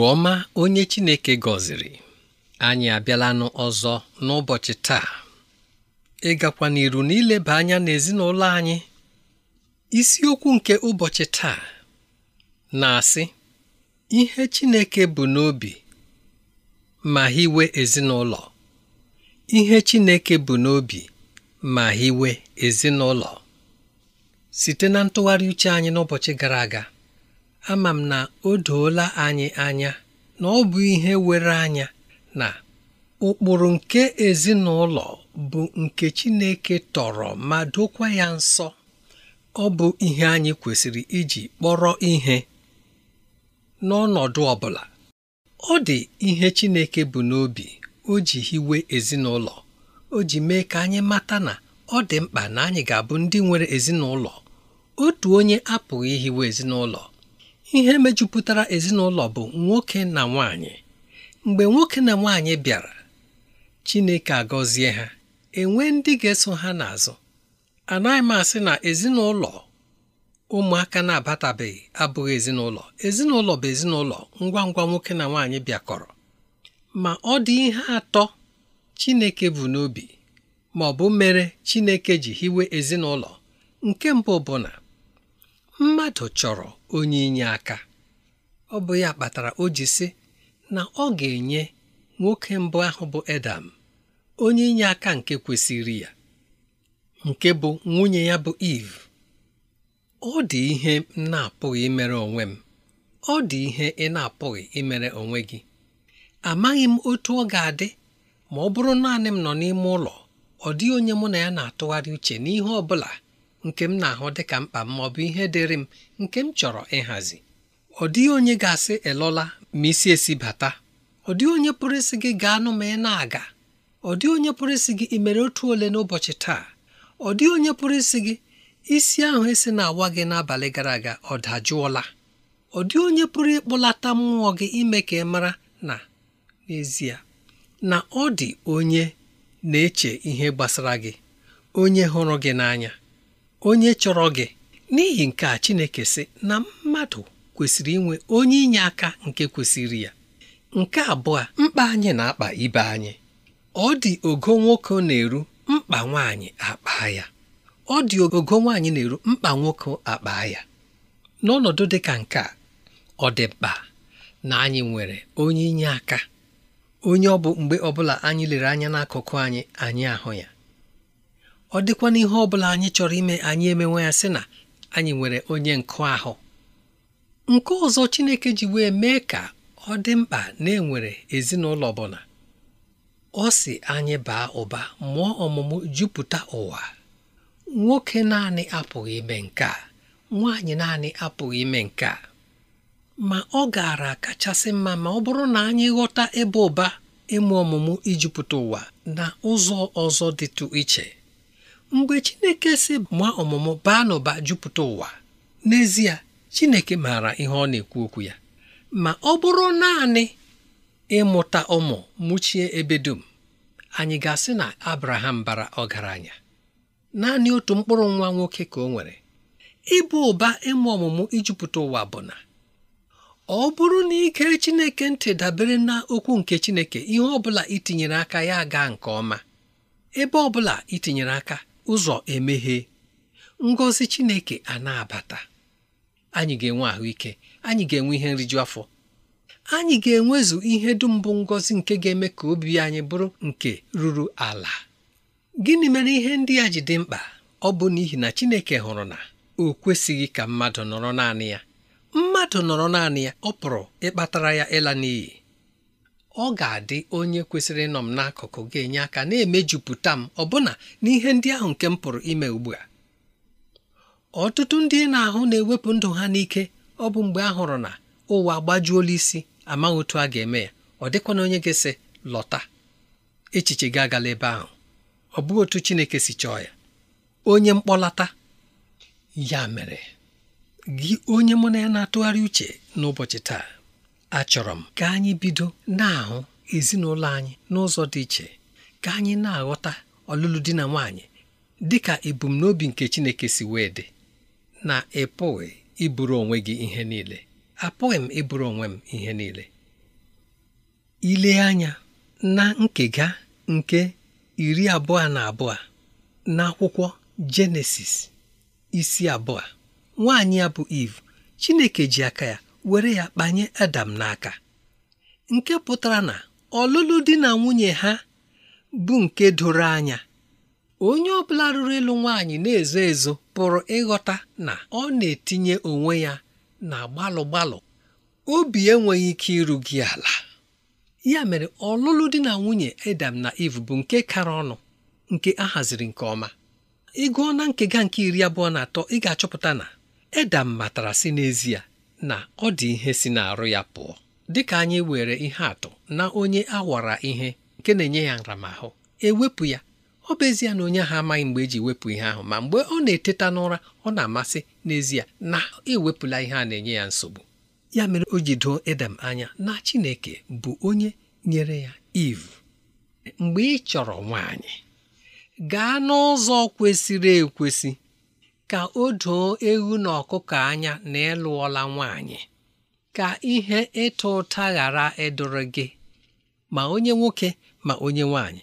Agwa ọma onye Chineke gọziri anyị abịalanụ ọzọ n'ụbọchị taa ịgakwa n'iru n'ileba anya n'ezinụlọ anyị isiokwu nke ụbọchị taa na-asị ihe Chineke bụ n'obi ma hiwe ezinụlọ ihe Chineke bụ n'obi ma hiwe ezinụlọ site na ntụgharị uche anyị n'ụbọchị gara aga ama m na o doola anyị anya na ọ bụ ihe were anya na ụkpụrụ nke ezinụlọ bụ nke Chineke tọrọ ma dokwa ya nsọ ọ bụ ihe anyị kwesịrị iji kpọrọ ihe n'ọnọdụ ọbụla, ọ dị ihe Chineke bụ n'obi o ji hiwe ezinụlọ o ji mee ka anyị mata na ọ dị mkpa na anyị ga-abụ ndị nwere ezinụlọ otu onye apụghị ihiwe ezinụlọ ihe mejupụtara ezinụlọ bụ nwoke na nwanyị mgbe nwoke na nwanyị bịara Chineke agọzie ha enwe ndị ga-eso ha n'azụ anaghị m asị na ezinụlọ ụmụaka na-abatabeghị abụghị ezinụlọ ezinụlọ bụ ezinụlọ ngwa ngwa nwoke na nwaanyị bịakọrọ ma ọ dị ihe atọ Chineke bụ n'obi ma ọ bụ mere Chineke ji hiwe ezinụlọ nke mbụ bụ mmadụ chọrọ onye inye aka ọ bụ ya kpatara o ji sị na ọ ga-enye nwoke mbụ ahụ bụ Edam onye inye aka nke kwesịrị ya nke bụ nwunye ya bụ Eve ọ dị ihe m na-apụghị imere onwe m ọ dị ihe ị na-apụghị imere onwe gị amaghị m otu ọ ga-adị ma ọ bụrụ naanị m nọ n'ime ụlọ ọ dịghị onye mụ na ya na-atụgharị uche n'ihe ọ bụla nke m na-ahụ dịka mkpa m bụ ihe dịrị m nke m chọrọ ịhazi ọ dịghị onye ga-asị elola ma isi esi bata ọ dịghị onye pụrụ isi gị gaa nụ ma ị na-aga ọ dịghị onye pụrụ isi gị imere mere otu ole n'ụbọchị taa ọ dịghị onye pụrụ isi gị isi ahụ esi na-awa gị n'abalị gara aga ọ dajụọla ọ dịghị onye pụrụ ịkpụlata mmụọ gị ime ka ị mara na n'ezie na ọ dị onye na-eche ihe gbasara gị onye hụrụ gị n'anya onye chọrọ gị n'ihi nke a Chineke sị na mmadụ kwesịrị inwe onye inye aka nke kwesịrị ya nke abụọ mkpa anyị na-akpa ibe anyị ọ dị ogo nwoke na-eru mkpa nwaanyị akpa ya ọ dị ogo nwaanyị na-eru mkpa nwoke akpa ya n'ọnọdụ dị ka nke a ọ dị mkpa na anyị nwere onye inye aka onye ọ bụ mgbe ọbụla anyị lere anya n'akụkụ anyị anyị ahụ ya ọ dịkwa n'ihe ọ bụla anyị chọrọ ime anyị emenwe ya sị na anyị nwere onye nkụ ahụ nke ọzọ Chineke ji wee mee ka ọ dị mkpa na enwere ezinụlọ ọbụla ọ si anyị baa ụba mụọ ọmụmụ jupụta ụwa nwoke naanị apụghị ime nke a nwaanyị naanị apụghị ime nke a ma ọ gaara kachasị mma ma ọ bụrụ na anyị ghọta ebe ụba ịmụ ọmụmụ ijupụta ụwa na ụzọ ọzọ dịtụ iche mgbe chineke si ma ọmụmụ baa n'ụba jupụta ụwa n'ezie chineke maara ihe ọ na-ekwu okwu ya ma ọ bụrụ naanị ịmụta ụmụ mụchie ebe dum anyị ga-asị na abraham bara ọgaranya naanị otu mkpụrụ nwa nwoke ka ọ nwere ịbụ ụba ịmụ ọmụmụ ijupụta ụwa bụ na ọ bụrụ na ike chineke ntị dabere na okwu nke chineke ihe ọbụla itinyere aka ya gaa nke ọma ebe ọbụla itinyere aka ụzọ emeghe ngozi Chineke a na-abata anyị ga-enwe ahụike anyị ga-enwe ihe nriju afọ anyị ga-enwezu ihe dum bụ ngozi nke ga-eme ka obi anyị bụrụ nke ruru ala gịnị mere ihe ndị a ji dị mkpa ọ bụ n'ihi na Chineke hụrụ na o kwesịghị ka mmadụ nọrọ naanị ya mmadụ nọrọ naanị ya ọ pụrụ ịkpatara ya ịla n'iyi ọ ga-adị onye kwesịrị ịnọ m n'akụkụ ga-enye aka na-emejupụta m ọbụna n'ihe ndị ahụ nke m pụrụ ime ugbu a ọtụtụ ndị na-ahụ na-ewepụ ndụ ha n'ike ọ bụ mgbe a hụrụ na ụwa agbajuola isi amaghị otu a ga-eme ya ọ dịkwana onye gị sị lọta echiche gị agala ebe ahụ ọ bụghị otu Chineke si chọọ ya onye mkpọlata ya mere gị onye mụ na ya na-atụgharị uche n'ụbọchị taa achọrọ m ka anyị bido na-ahụ ezinụlọ anyị n'ụzọ dị iche ka anyị na-aghọta ọlụlụ di na nwaanyị dị ka ebumnobi nke Chineke si wee dị na ịpụghị ịbụrụ onwe gị ihe niile apụghị m ịbụrụ onwe m ihe niile ile anya na nkega nke iri abụọ na abụọ na akwụkwọ Jenesis isi abụọ nwaanyị ya bụ Iv Chineke ji aka ya were ya kpanye Adam n'aka nke pụtara na ọlụlụ di na nwunye ha bụ nke doro anya onye ọ bụla rụrụ ịlụ nwaanyị na-ezo ezo pụrụ ịghọta na ọ na-etinye onwe ya na gbalụ gbalụ obi enweghị ike iru gị ala ya mere ọlụlụ di na nwunye Adam na iv bụ nke kara ọnụ nke a haziri nke ọma ịgụọ na nkega nke iri abụọ na atọ ị ga-achọpụta na edam matara si n'ezie na ọ dị ihe si n'arụ ya pụọ dịka anyị were ihe atụ na onye awara ihe nke na-enye ya nramahụ ewepụ ya ọ bụ ezie na onye ahụ amaghị mgbe eji wepụ ihe ahụ ma mgbe ọ na-eteta n'ụra ọ na-amasị n'ezie na ewepụla ihe a na-enye ya nsogbu ya mere o ji doo edem anya na Chineke bụ onye nyere ya iv mgbe ị chọrọ nwaanyị gaa n'ụzọ kwesịrị ekwesị ka o doo egwu na ọkụkọ anya na ịlụọla nwaanyị ka ihe ịta ụta ghara ịdụrụ gị ma onye nwoke ma onye nwaanyị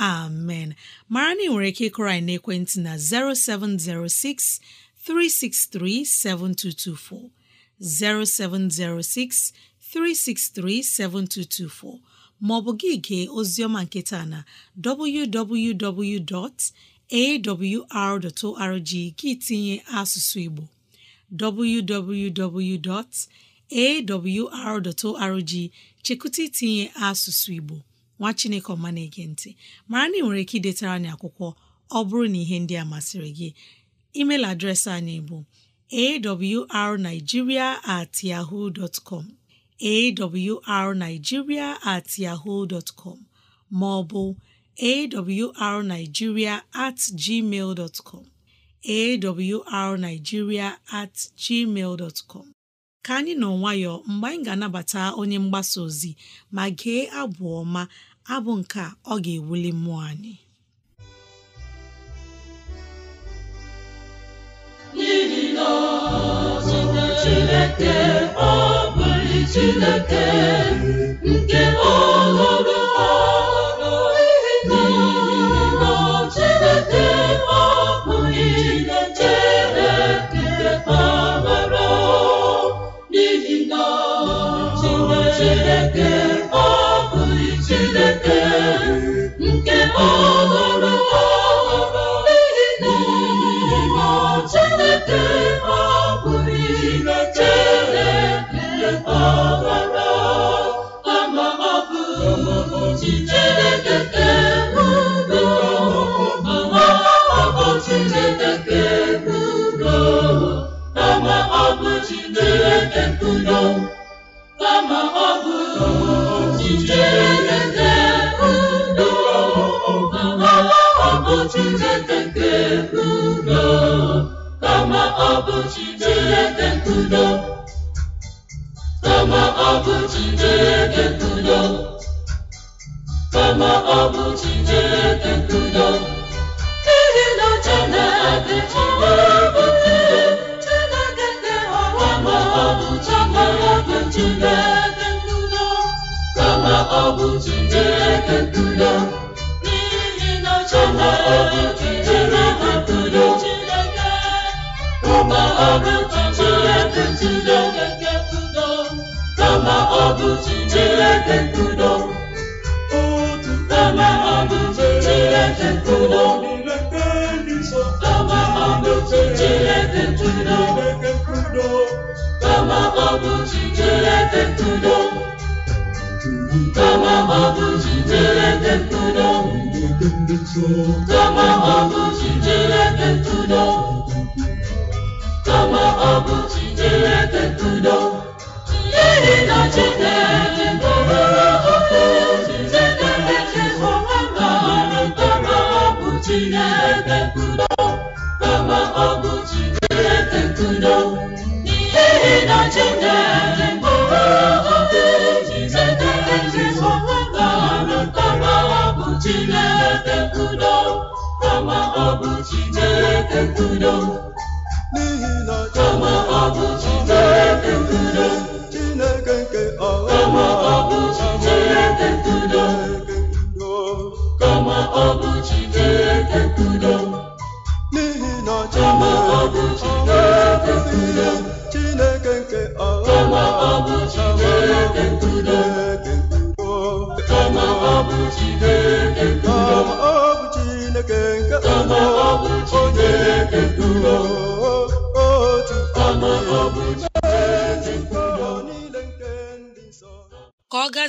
amen mara na nwere ike ịkụrọ anyị n'ekwentị na 0706 363 7224 0706 363 7224 maọbụ gị gee oziọma nke taa na www.awr.org gị tinye asụsụ Igbo www.awr.org chekụta itinye asụsụ Igbo nwa chineke ọma na-ege ntị mara na ị nwere ike idetara anyị akwụkwọ ọ bụrụ na ihe ndị a masịrị gị email adreesị anyị bụ arigiria at com at com ma ọ bụ at gmail dot com at gmail dtcom ka anyị nọ nwayọọ mgbe anyị ga-anabata onye mgbasa ozi ma gee abụ ọma abụ nke a ọ ga-ewuli mmụọ anyị n'ihi na Chineke ọ bụghị Chineke nke ọhụrụ n'ihi na ọ Chineke nke n'ihi na Chineke Hallelujah. Oh, Chineke nkudo kama ọ bụ Chineke nkudo kama ọ bụ Chineke nkudo n'ihi na Chineke ma ọ bụ Chineke Chineke nkudo nkudo kama ọ bụ Chineke nkudo kama ọ bụ Chineke nkudo kama ọ bụ Chineke nkudo kama ọ bụ Chineke nkudo kama ọ bụ Chineke nkudo kama ọ bụ Chineke nkudo kama ọ bụ Chineke nkudo ma ọ bụ Chineke tudo n'ihi na Chineke Chineke ọ bụ Chineke tudo kama ọ bụ Chineke tudo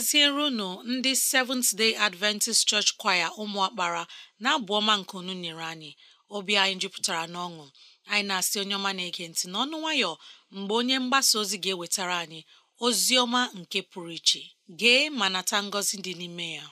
eziere unu ndị Seventh Day Adventist Church Choir ụmụakpara na-abụ ọma nke unu nyere anyị obi anyị jupụtara n'ọṅụ anyị na-asị onye ọma na-ege ntị n'ọnụ nwayọ mgbe onye mgbasa ozi ga-ewetara anyị ozi ọma nke pụrụ iche gee ma nata ngọzi dị n'ime ya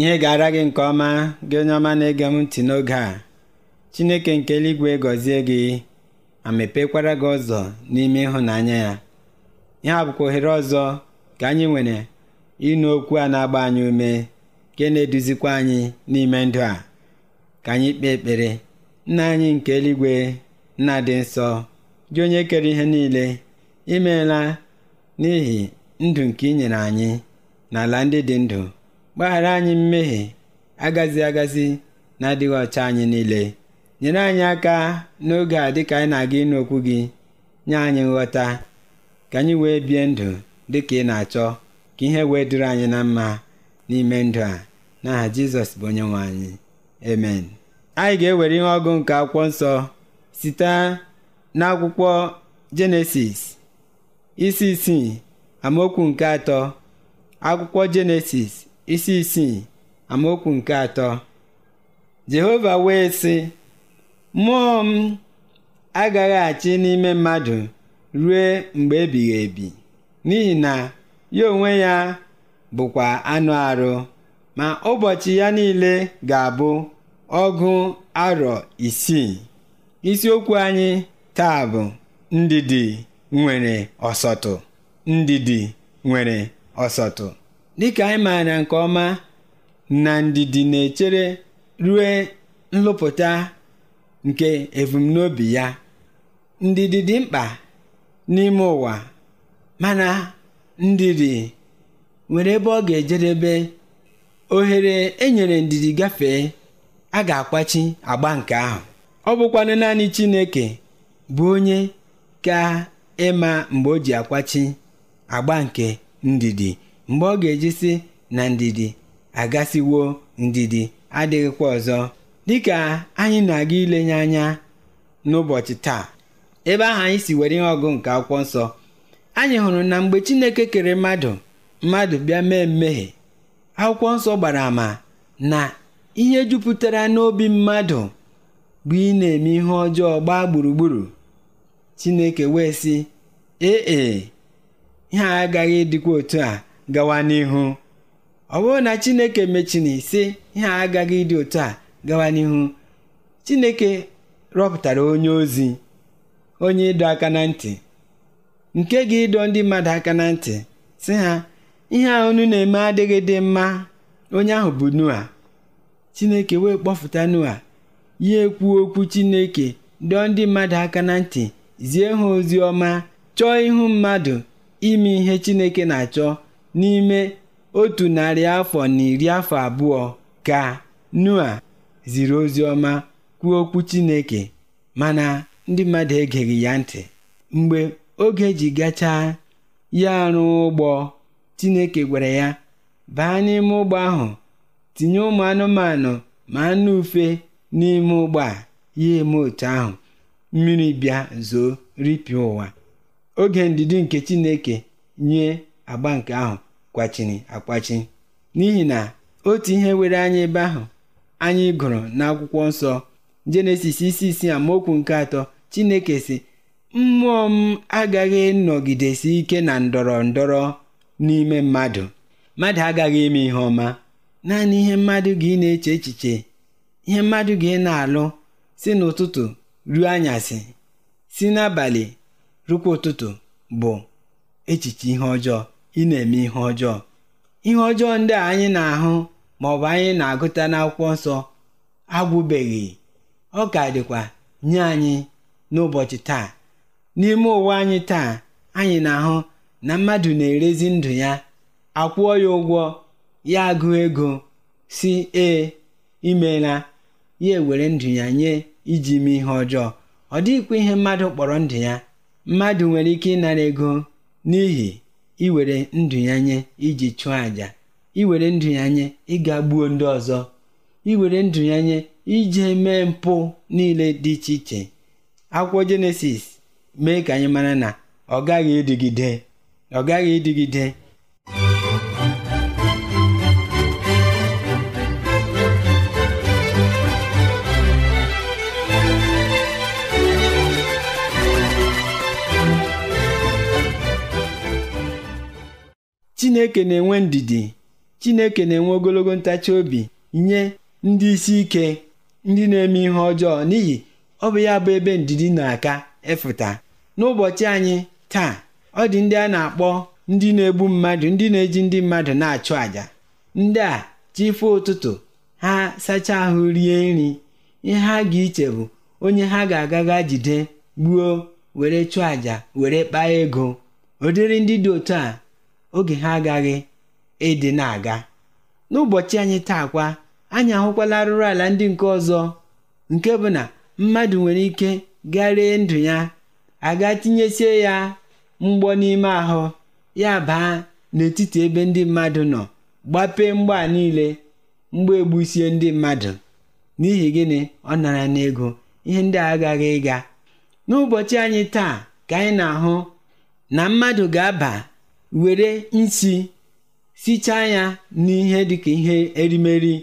ihe ga-ara gị nke ọma gị onye ọma na-ege m ntị n'oge a Chineke nke eluigwe gọzie gị ma mepekwara gị ụzọ n'ime ịhụnanya ya ihe a bụkwa ohere ọzọ ka anyị nwere ịnụ okwu a na-agba anyị ume nke na-eduzikwa anyị n'ime ndụ a ka anyị kpee ekpere nna anyị nke eluigwe nna dị nsọ gị onye kere ihe niile imeela n'ihi ndụ nke i nyere anyị n'ala ndị dị ndụ gbaghara anyị mmehie agazi agazi na adịghị ọcha anyị niile nyere anyị aka n'oge a dịka anyị na-aga ịnụ okwu gị nye anyị nghọta ka anyị wee bie ndụ dịka ị na-achọ ka ihe wee dịrị anyị na mma n'ime ndụ a n'aha Jizọs bụ onye nwe anyị amen anyị ga-ewere ihe ọgụ nke akwụkwọ nsọ site n'akwụkwọ Jenesis isi isii amaokwu nke atọ akwụkwọ Jenesis isi isii amaokwu nke atọ jehova wee sị mmụọ m agaghị achị n'ime mmadụ rue mgbe ebighị ebi n'ihi na ya onwe ya bụkwa anụ arụ ma ụbọchị ya niile ga-abụ ọgụ arọ isii isiokwu anyị taa bụ ndidi nwere ọsọtụ ndidi nwere ọsọtụ dịka anyị maara nke ọma na ndidi na-echere rue nlụpụta nke ebumnobi ya ndidi dị mkpa n'ime ụwa mana ndidi nwere ebe ọ ga-ejedebe ohere enyere ndidi gafee a ga-akwachi agba nke ahụ ọ bụkwanụ naanị Chineke bụ onye ka ịma mgbe o ji akwachi agba nke ndidi mgbe ọ ga-eji sị na ndidi agasiwo ndidi adịghịkwa ọzọ dịka anyị na-aga ilenye anya n'ụbọchị taa ebe ahụ anyị si were ihe ọgụ nke akwụkwọ nsọ anyị hụrụ na mgbe Chineke kere mmadụ mmadụ bịa mee mmehie akwụkwọ nsọ gbara ama na ihe jupụtara n'obi mmadụ bụ ị na-eme ihe ọjọọ gbaa gburugburu Chineke wee sị ee e, ihe agaghị dịkwa otu a gawa n'ihu ọ bụrụ na chineke mechina sị ihe a agaghị ịdị otu a gawa n'ihu chineke rọpụtara onye ozi onye ịdọ aka na ntị nke gị ịdọ ndị mmadụ aka na ntị sị ha ihe a unu na-eme adịghị dị mma onye ahụ bụ nua chineke wee kpọfụta nua ya ekwuo okwu chineke dọọ ndị mmadụ aka na ntị zie ha ozi ọma chọọ ihu mmadụ ime ihe chineke na-achọ N'ime otu narị afọ na iri afọ abụọ ka nua ziri oziọma kwuo okwu Chineke, mana ndị mmadụ egeghị ya ntị. Mgbe oge ji gachaa ya arụ ụgbọ, Chineke gwara ya, “Baa n'ime ụgbọ ahụ, tinye ụmụ anụmanụ ma anụ ufe n'ime ụgbọ a.” Ya eme otu ahụ, mmiri bịa zoo ripịa ụwa. Oge ndidi nke Chineke nye agba nke ahụ kwachiri akwachi n'ihi na otu ihe were anyị ebe ahụ anyị gụrụ n'akwụkwọ nsọ jenesis isi isii amaokwu nke atọ chineke si mmụọ m agaghị nọgidesi ike na ndọrọ ndọrọ n'ime mmadụ mmadụ agaghị eme ihe ọma naanị ihe mmadụ gị na-eche echiche ihe mmadụ gị na-alụ si n'ụtụtụ ruo anyasị si n'abalị rukwa ụtụtụ bụ echiche ihe ọjọọ ị na-eme ihe ọjọọ ihe ọjọọ ndị a anyị na-ahụ ma ọ bụ anyị na-agụta n'akwụkwọ nsọ agwụbeghị ọ ka dịkwa nye anyị n'ụbọchị taa n'ime ụwa anyị taa anyị na-ahụ na mmadụ na-erezi ndụ ya akwụọ ya ụgwọ ya agụ ego si ee imela ya ewere ndụ ya nye iji mee ihe ọjọọ ọ dịghịkwa ihe mmadụ kpọrọ ndụ ya mmadụ nwere ike ịnara ego n'ihi iwere ndụ ya iji chụọ àjà iwere ndụ ya nye ịga gbuo ndị ọzọ iwere ndụ ya nye ije mee mpụ niile dị iche iche akwụkwọ jenesis mee ka anyị mara na ọ gaghị ịdịgide ọ gaghị ịdịgide chineke na-enwe ndidi chineke na-enwe ogologo ntachi obi nye ndị isi ike ndị na-eme ihe ọjọọ n'ihi ọ bụ ya bụ ebe ndidi na-aka efụta n'ụbọchị anyị taa ọ dị ndị a na-akpọ ndị na-egbu mmadụ ndị na-eji ndị mmadụ na-achụ àjà ndị a chifụ ụtụtụ ha sachaa ahụ rie nri ihe ha ga-iche bụ onye ha ga-agaga jide gbuo were chụọ àjà were kpaa ego ụdịrị ndị dị otu a oge ha agaghị ede na-aga. N'ụbọchị anyị taa kwa, anyị ahụkwala ala ndị nke ọzọ nke bụ na mmadụ nwere ike garie ndụ ya aga tinyesie ya mgbọ n'ime ahụ ya baa n'etiti ebe ndị mmadụ nọ gbapee mgba niile mgba egbusie ndị mmadụ n'ihi gịnị ọ nara n'ego ihe ndị agaghị ịga n'ụbọchị anyị taa ka anyị na-ahụ na mmadụ ga-aba were isi sichaa ya n'ihe dịka ihe erimeri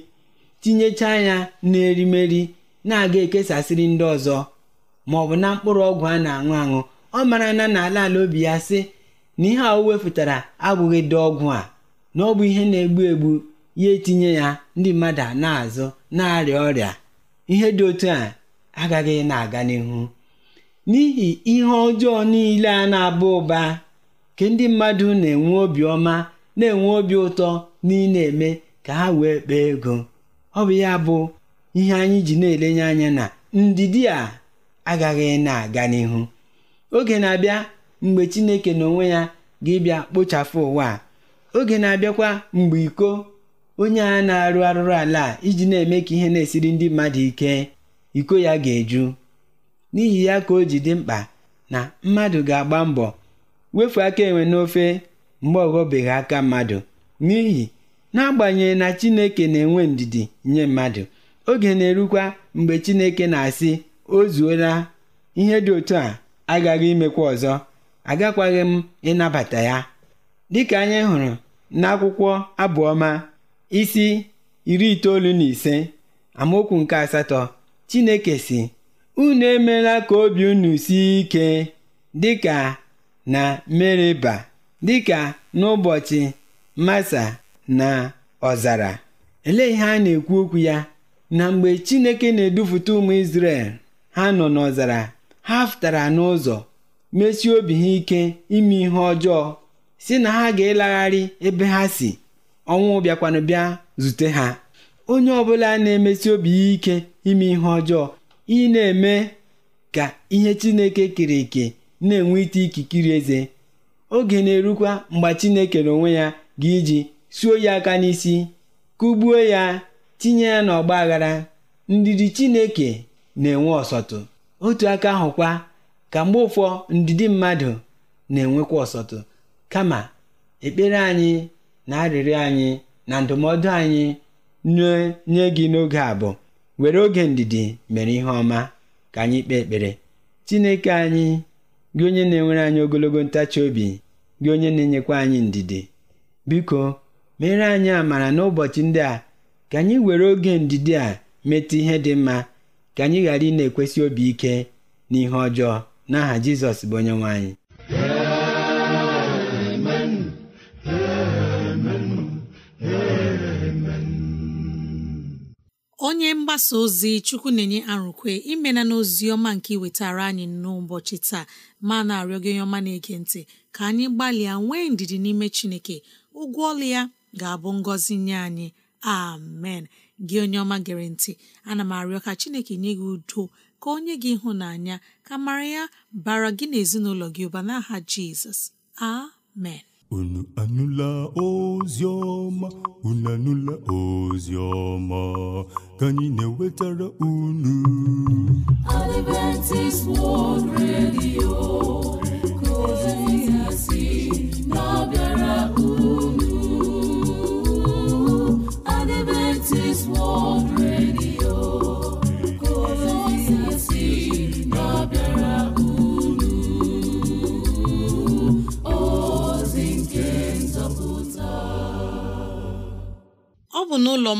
tinyechaa ya n'erimeri na-aga ekesasịrị ndị ọzọ ma ọ bụ na mkpụrụ ọgwụ a na-aṅụ aṅụ ọ mara na n'ala ala obi ya sị na ihe a o wepụtara abụghị dị ọgwụ a na ọ bụ ihe na-egbu egbu ya etinye ya ndị mmadụ na-azụ na-arịa ọrịa ihe dị otu a agaghị na-aga n'ihu n'ihi ihe ọjọọ niile a na-aba ụba ka ndị mmadụ na-enwe obiọma na-enwe obi ụtọ na ị na-eme ka ha wee kpaa ego ọ bụ ya bụ ihe anyị ji na-elenye anya na ndidi a agaghị na-aga n'ihu oge na-abịa mgbe Chineke n'onwe ya ga-ịbịa kpochapụ ụwa oge na-abịakwa mgbe iko onye a na-arụ arụrụ ala iji na-eme ka ihe na-esiri ndị mmadụ ike iko ya ga-eju n'ihi ya ka o ji dị mkpa na mmadụ ga-agba mbọ wefu aka enwe n'ofe mgbe ọghọbeghị aka mmadụ n'ihi n'agbanyeghị na Chineke na-enwe ndidi nye mmadụ oge na-erukwa mgbe Chineke na-asị ozuola ihe dị otu a agaghị imekwa ọzọ agakwaghị m ịnabata ya dịka anyị hụrụ n'akwụkwọ abụọma isi iri itoolu na ise amaokwu nke asatọ Chineke si unu emeela ka obi unu sie ike dịka na Meriba dịka n'ụbọchị Masa na ọzara. elee ihe a na-ekwu okwu ya na mgbe Chineke na-edupụta ụmụ Izrel ha nọ n'ọzara ha pụtara n'ụzọ mesie obi ha ike ime ihe ọjọọ si na ha ga-elagharị ebe ha si ọnwụ bịakwanụ bịa zute ha onye ọbụla na-emesi obi ya ike ime ihe ọjọọ ị na-eme ka ihe Chineke kere eke na enwe ite ikikiri eze oge na-erukwa mgbe Chineke na onwe ya ga-iji suo ya aka n'isi kụgbuo ya tinye ya n'ọgba aghara ndidi Chineke na-enwe ọsọtụ otu aka ahụkwa ka mgbe ụfọ ndidi mmadụ na-enwekwa ọsọtụ kama ekpere anyị na arịrịọ anyị na ndụmọdụ anyị nye gị n'oge a bụ were oge ndidi mere ihe ọma ka anyị kpee ekpere Chineke anyị gị onye na-enwere anyị ogologo ntachi obi gị onye na-enyekwa anyị ndidi biko mere anyị amara n'ụbọchị ndị a ka anyị were oge ndidi a metụ ihe dị mma ka anyị ghara ị na-ekwesị obi ike n'ihe ọjọọ n'aha Jizọs bụ onye anyị onye mgbasa ozi chukwu na-enye arụkwe imena n'ozi ọma nke iwetara anyị n'ụbọchị taa ma na-arịọ gị onye ọma na-ege ntị ka anyị gbalịa nwee ndidi n'ime chineke ụgwọ ọlụ ya ga-abụ ngọzi nye anyị amen gị onye ọma gere ntị ana m arịọ ka chineke nye gị udo ka o nye gị ịhụnanya ka mara ya bara gị na ezinụlọ gị ụba n'aha jizọs amen unu anụla ozi ọma unu anụla ozi ọma ka anyị na-ewetara unu Adventist World Radio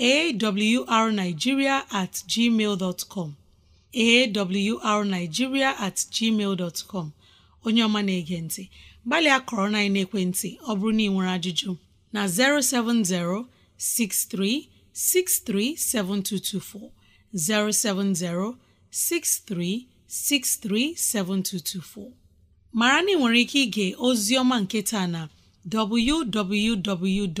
awrnigeria at gmail awrnigeria at gmail dot onye ọma na-ege ntị gbalịa kọrọ na ekwentị ọ bụrụ na ị nwere ajụjụ na 070 6363 7224 070 6363 7224 mara ike ige ozi ọma nke taa na www.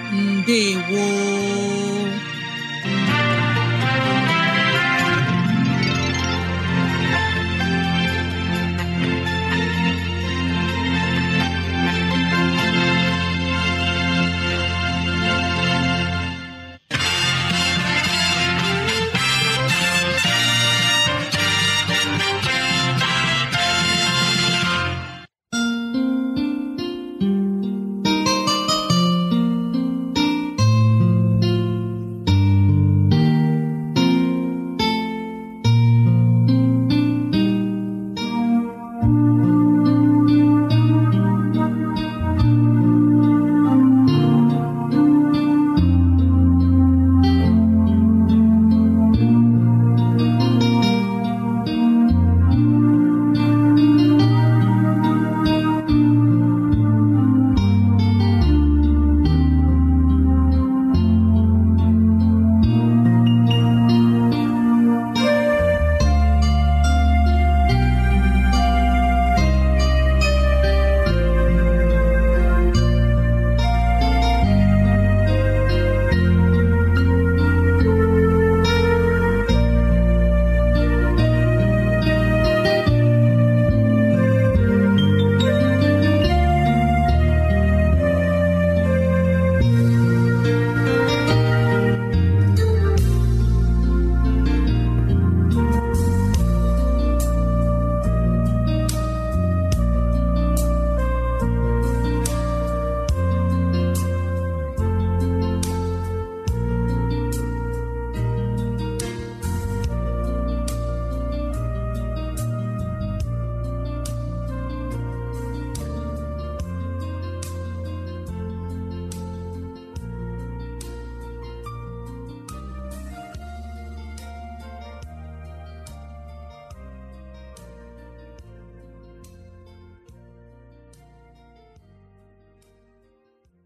ndewo